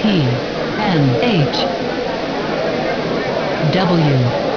P N H W